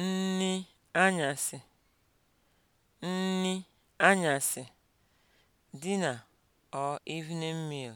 nni anyasị nni anyasị (dinner or evening meal)